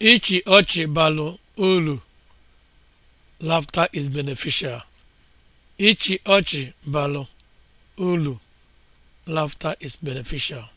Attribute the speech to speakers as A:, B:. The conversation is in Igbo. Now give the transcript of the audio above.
A: Ịchị ọchị balụ uru lafta is beneficial). is
B: beneficial)